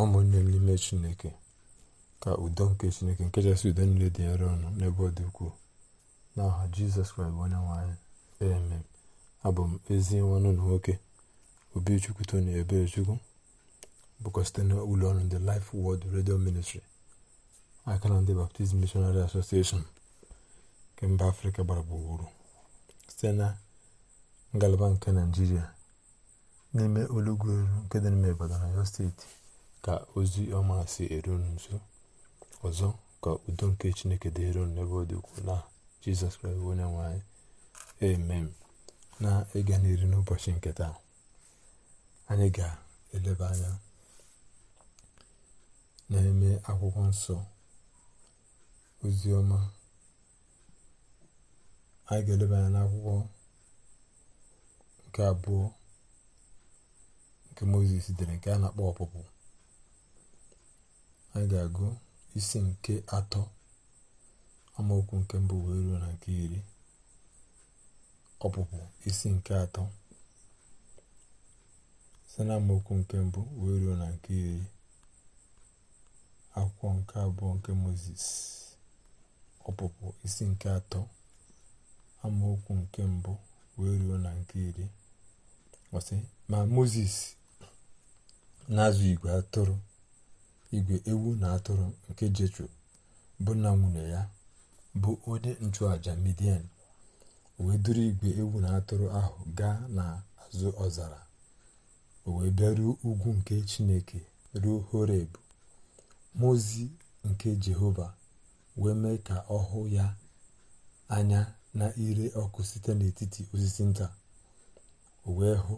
ụmụnne n'ime chineke ka udo nke chineke nke kachasị udo niile dị nro ọnụ n'ebe ọ dị ukwuu n'aha jizọs kraịst bụ onye nwanyị amen abụ m ezi nwanne ụlọ nwoke obichukwu tony ebechukwu bụkwa site na ụlọ ọrụ ndị Life Word redio Ministry aka na ndị Baptist Missionary asosieshọn nke mba afrịka gbara gburugburu site na ngalaba nke naijiria n'ime olugwu elu nke dị n'ime Ibadan na Oyo steeti ka ozi ọma si eru nso ọzọ ka udo nke chineke dị elu n'ebe ọ dị ukwu na jizọs kraịst onye nwe anyị amen na ịga n'iru n'ụbọchị nke taa anyị ga-eleba anya na-eme akwụkwọ nsọ ozi ọma anyị ga-eleba anya n'akwụkwọ nke abụọ nke mozis dere nke a na-akpọ ọpụpụ anyị ga-agụ isi nke atọ amaokwu nke mbụ wee ruo na nke iri ọpụpụ isi nke atọ site na amaokwu nke mbụ wee ruo na nke iri akwụkwọ nke abụọ nke moses ọpụpụ isi nke atọ amaokwu nke mbụ wee ruo na nke iri ma moses na-azụ igwe atụrụ igwe ewu na atụrụ nke jetro bụ nna nwunye ya bụ onye nchụaja midian wee duru igwe ewu na atụrụ ahụ gaa n'azụ ọzara o wee bịaruo ugwu nke chineke ruo horeb mozi nke jehova wee mee ka ọ hụ ya anya na ire ọkụ site n'etiti osisi nta o wee hụ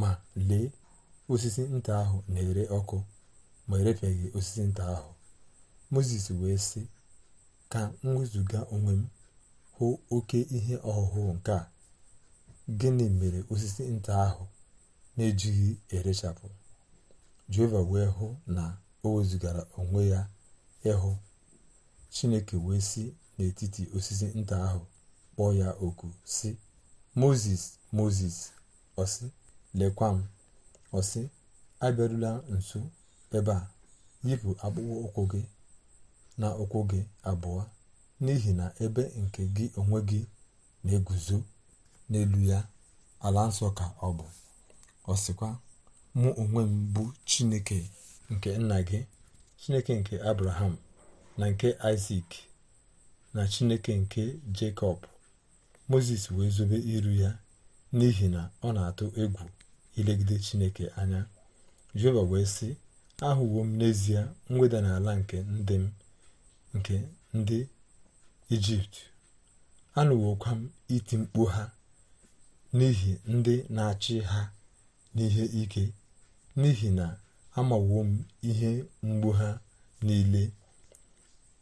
ma lee osisi nta ahụ na-ere ọkụ ma erefeghị osisi nta ahụ moses wee sị ka m wezụga onwe m hụ oke ihe ọhụhụ nke a gịnị mere osisi nta ahụ na-ejighị erechapụ jehova wee hụ na o wezụgara onwe ya ịhụ chineke wee si n'etiti osisi nta ahụ kpọọ ya oku si moses moses ọsị lekwa m ọsị abịarula nso ebe a yipụ akpụkpọ ụkwụ gị na ụkwụ gị abụọ n'ihi na ebe nke gị onwe gị na-eguzo n'elu ya ala nsọ ka ọ bụ ọ sịkwa mụ onwe m bụ chineke nke nna gị chineke nke abraham na nke isak na chineke nke jekọb moses wee zobe iru ya n'ihi na ọ na-atụ egwu ilegide chineke anya jehova wee sị ahụwo m n'ezie mweda n'ala nke ndị m nke ndị ijipt anụwokwa m iti mkpu ha n'ihi ndị na-achị ha n'ihe ike n'ihi na amawo m ihe mgbu ha niile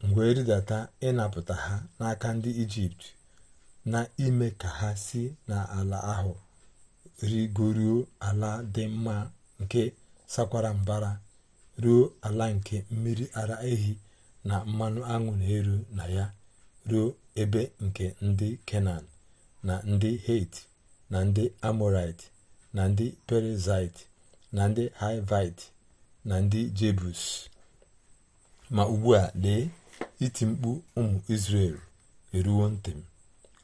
mgbe rịdata ịnapụta ha n'aka ndị ijipt na ime ka ha si n'ala ahụ rigoruo ala dị mma nke sakwara mbara ruo ala nke mmiri ara ehi na mmanụ aṅụ na-eru na ya ruo ebe nke ndị kenan na ndị het na ndị amorait na ndị perizit na ndị hivit na ndị jebus ma ugbu a lee iti mkpu ụmụ israel eruwo ntị m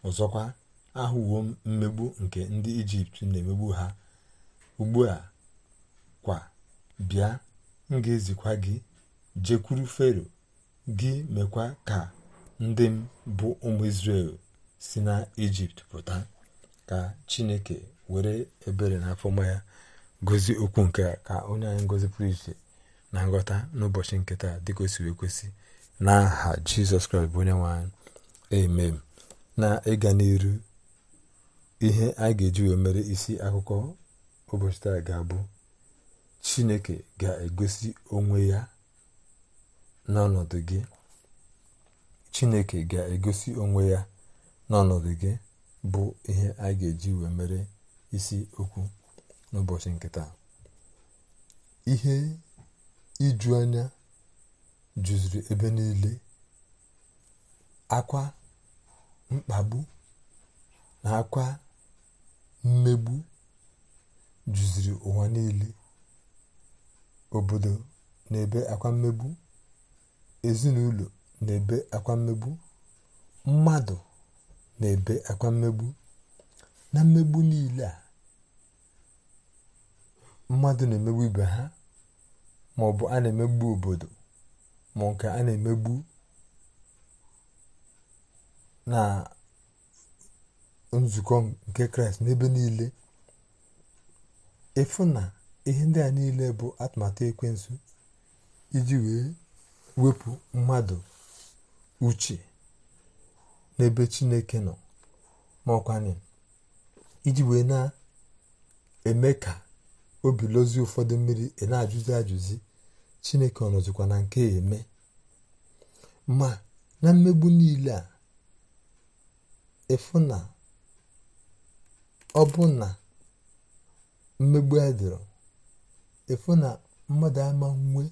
ọzọkwa ahụwo m mmegbu nke ndị ijipt na-emegbu ha ugbu a kwa bịa m ga-ezikwa gị jekwuru fero gị mekwa ka ndị m bụ ụmụ isrel si na ijipt pụta ka chineke were ebere na afọma ya gozi okwu nke a ka onye anyị ngozi pụrụ iche na nghọta n'ụbọchị nketa dịka o siri ekwesị n'aha jizọs kraịst bụ onye nwe anyị emem na ịga n'iru ihe a ga-eji mere isi akụkọ ụbọchị taa ga-abụ chineke ga-egosi onwe ya n'ọnọdụ gị bụ ihe a ga-eji wee mere isi okwu n'ụbọchị nke taa ihe iju anya juziri ebe niile akwa mkpagbu na akwa mmegbu juziri ụwa niile obodo na-ebe akwa mmegbu ezinụlọ na-ebe akwa mmegbu mmadụ na-ebe akwa mmegbu na mmegbu niile a mmadụ na-emegbu ibe ha ma ọ bụ a na-emegbu obodo ma nke a na-emegbu na nzukọ nke kraịst n'ebe niile efu na ihe ndị a niile bụ atụmatụ ekwensu iji wee wepụ mmadụ uche n'ebe chineke nọ ma ọkwanye iji wee na-eme ka obi lozi ụfọdụ mmiri ị na-ajụzi ajụzi chineke ọ nọzikwa na nke eme ma na mmegbu niile a ịfụ na ọ bụ na mmegbu a dịrọ efu na mmadụ ama nwe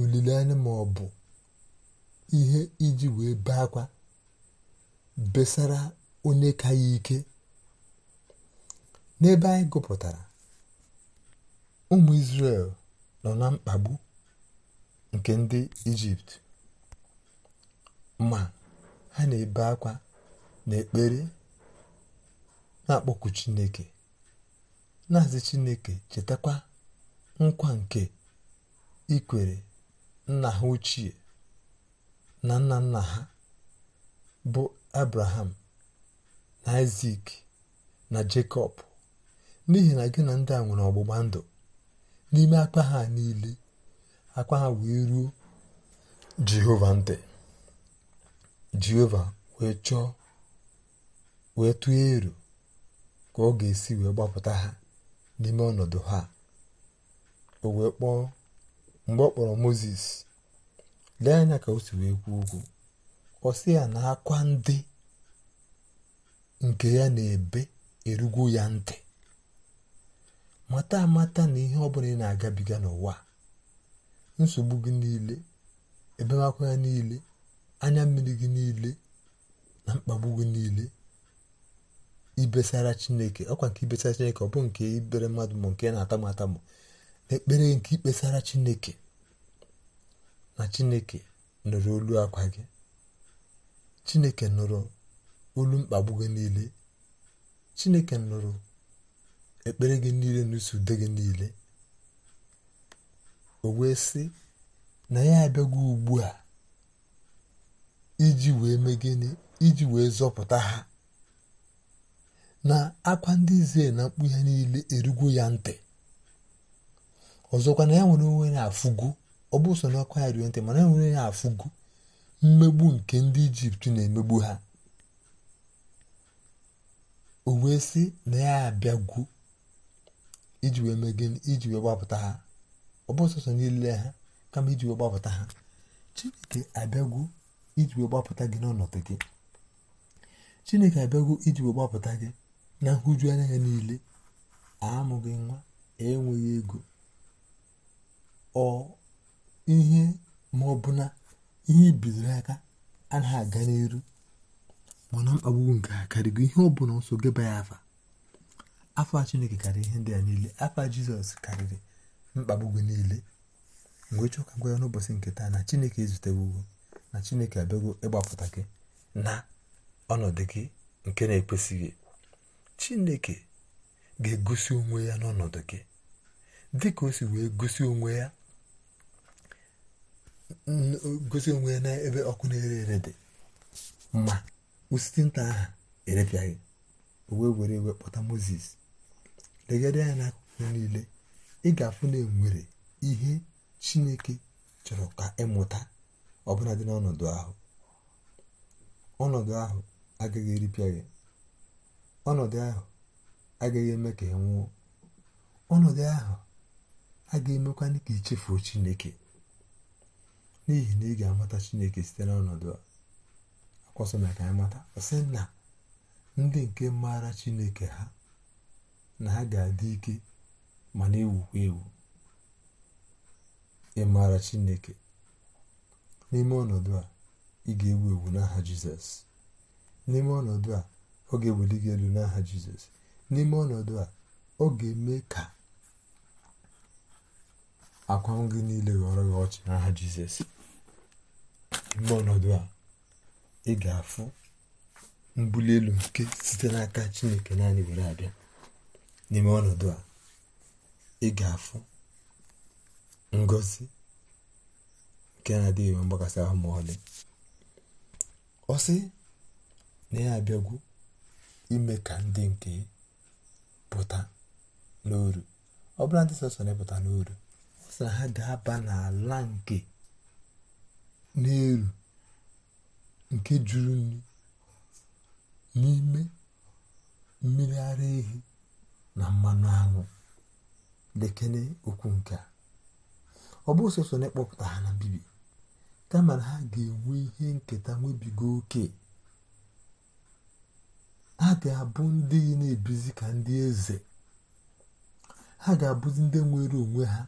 olileanya ma ọ bụ ihe iji wee bee akwa besara onye ka ike n'ebe anyị gụpụtara ụmụ isrel nọ na mkpagbu nke ndị Ijipt ma ha na-ebe akwa na ekpere na-akpọku Chineke na-azị chineke chetakwa nkwa nke ikwere nna ha ochie na nna nna ha bụ abraham na isak na jakob n'ihi na gị na ndị a nwere ọgbụgba ndụ n'ime akpa ha niile akpa ha wee ruo jehova ntị jehova wee chọọ wee tụọ ero ka ọ ga-esi wee gbapụta ha n'ime ọnọdụ ha o wee kpọọ mgbe ọ kpọrọ moses lee anya ka o si wee kwuo okwu ọ sị ya na akwa ndị nke ya na-ebe erugwo ya ntị mata amata na ihe ọbụla ị na-agabiga n'ụwa nsogbu gị niile ebemakwụ ya niile anya mmiri gị niile na mkpagbu gị niile ibesara chineke ọkwa nke ibesara chineke ọ bụ nke ibere mmadụ m nke na-ata m ata na ekpere nke ikpesara chineke na chineke nụrụ olu akwa gị chineke nụrụ olu mkpagbu gị niile chineke nụrụ ekpere gị niile na usu ude gị niile o wee sị na ya abịago ugbu a iji wee mee gịnị iji wee zọpụta ha na akwa ndị izie na mkpu ya niile erugwu ya ntị ọzọkwa na ya nwere onwe ya afụgo ọ bụ so n'ọkwa ya ruo ntị mana ya nwere ya afụgo mmegbu nke ndị ijipt na-emegbu ha o wee sị na ya abịagwu iji wee mee iji wee gbapụta ha ọ bụ niile ha kama iji chineke abịagwu iji wee gbapụta gị n'ọnọdụ gị na nhụju anya ya niile amụghị nwa e enweghị ego ọ ihe ma ọ bụ na ihe bidoro aka anaghị aga n'elu mana mkpagbu nke a karịgo ihe ọ bụla nso geba ya afa afa chineke karịrị ihe ndị a niile afa jizọs karịrị mkpagbu gị niile mgbe chọọ ka gwa ya n'ụbọchị nke taa na chineke ezutego na chineke abịago ịgbapụta gị na ọnọdụ gị nke na-ekwesịghị chineke ga-egosi onwe ya n'ọnọdụ gị dịka o si wee gosi onwe ya gosi n'ebe ọkụ na-ere ere dị ma osisi nta aha erepịaghị wee were iwe kpọta moses legharịa ya n'akụkụ niile ị ga-afụ na enwere ihe chineke chọrọ ka ịmụta ọbụla dị n'ọnọdụ ahụ ọnọdụ ahụ agaghị eripịa gị ọnọdụ ahụ agaghị eme ka ị e nwụọ ọnọdụ ahụ agaghị emekwa ka ichefuo e chineke n'ihi na ị ga-amata chineke site n'ọnọdụ a akwọsọ na ka anyị mata sị na ndị nke maara chineke ha na ha ga-adị ike ma na-ewukwa ewu ịmara chineke n'ime ọnọdụ a ị ga-ewu ewu n'aha jizọs n'ime ọnọdụ a ọ ga gị elu n'aha jizọs n'ime ọnọdụ a ọ ga-eme ka akwa gị niile ghọrọ gị ọchị n'aha jizọs n'ime ọnọdụ a ị ga-afụ mbuli elu nke site n'aka chineke naanị were abịa n'ime ọnọdụ a ị ga-afụ ngozi nke na-adịghị mgbakasị ahụ ma ọlị dị ọ sị na ya abịagwu ime ka ndị nke pụta n'oru ọ ndị sọsọ na-epụta ha ga-aba n'ala nke n'elu nke juru nri n'ime mmiri ara ehi na mmanụ aṅụ lekene okwu nke a ọ bụ sọsọ na-ekpọpụta ha na mbibi kama na ha ga-enwe ihe nketa nwebigo oke ha ga-abụ ndị na-ebizi ka ndị eze ha ga-abụzi ndị nwere onwe ha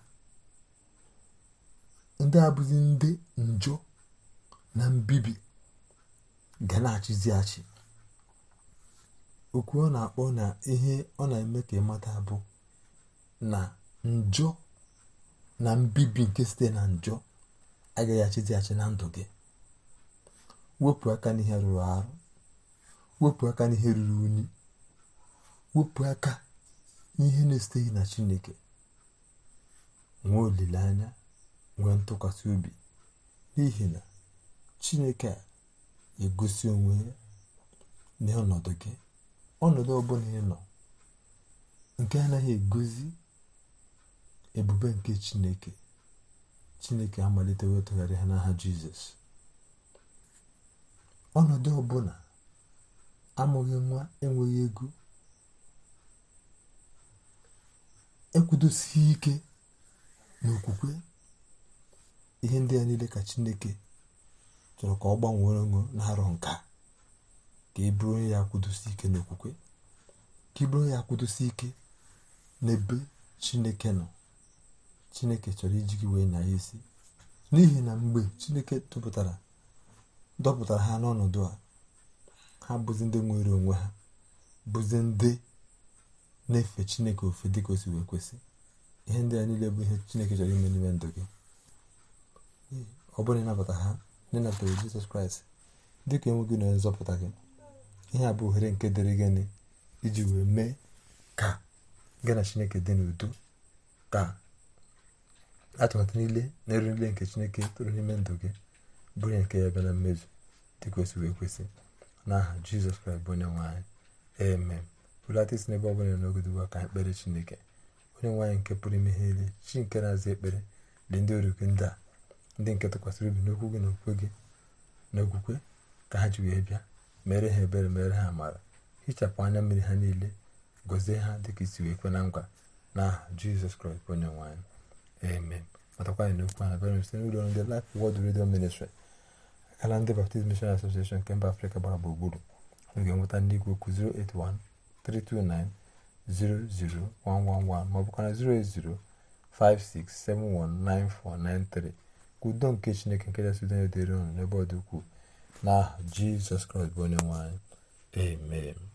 ndị abụzi ndị njọ na mbibi ga na-achịzi achị okwu ọ na-akpọ na ihe ọ na-eme ka ịmata bụ na njọ na mbibi nke site na njọ agaghị achịzi achị na ndụ gị wepụ aka n'ihe rụrụ arụ wepụ aka n'ihe ruru unyi wepụ aka n'ihe na-esiteghị na chineke nwee olileanya nwee ntụkwasị obi n'ihi na chineke a egosi onwe ya n'ọnọdụ gị ọnọdụ ọbụla ị nọ nke anaghị egozi ebube nke chineke chineke amalite wetụgharị ha n'aha jizọs ọnọdụ ọbụla amụghị nwa enweghị ego ekwudosighi ike n'okwukwe ihe ndị a niile ka chineke chọrọ ka ọ gbanwere onwe na-arọ nka ka e bụrụ onye ya akwụdosi ike n'okwukwe ka ị e bụrụ onye ya akwụdosi ike n'ebe chineke nọ chineke chọrọ iji gị wee ya isi n'ihi na mgbe chineke dọpụtara ha n'ọnọdụ a ha bụzi ndị nwere onwe ha bụzi ndị na-efe chineke ofe dị ka o si wee kwesị ihe ndị a niile bụ ihe chineke chọrọ ime n'ime ndụ gị ọ bụrụ na ịnabata ha n'ịnatara jizọs kraịst dị ka gị na nzọpụta gị ihe a bụ ohere nke dịrị gịnị iji wee mee ka gị na chineke dị n'udo ka atụmatụ niile na eru niile nke chineke tụrụ n'ime ndụ gị bụrụ nke ya bịa na mmezu dị ka wee kwesị n'aha jizọs kraịst bụ onye nwanyị eme bulata isi n'ebe ọbụla n'ogide ugbu a ka anyị chineke onye nwaanyị nke pụrụ ime ihe niile chi nke na-aza ekpere dị ndị ọrụ gị ndị a ndị nke tụkwasịrị obi n'okwu gị na okwukwe gị na okwukwe ka ha ji wee bịa mere ha ebere mere ha amara hichapụ anya mmiri ha niile gọzie ha dịka isi wee kwe na nkwa n'aha jizọs kraịst bụ onye nwanyị eme matakwa anyị n'okwu ha bịara site n'ụlọ ndị lif Word redio Ministry akala ndị Baptist Mission Association nke mba Afrịka gbara gburugburu n'oge nweta ndị igwe okwu 08132900111 ma ọ bụkwa 08056719493 ka udo nke Chineke nke kachasị udo niile dịrị unu n'ebe ọ dị ukwuu n'aha Jizọs Kraịst bụ onye nwe amen